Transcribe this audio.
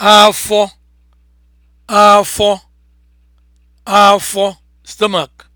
afọ afọ afọ stomach